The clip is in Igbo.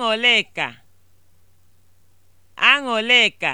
Aṅụlịka Aṅụlịka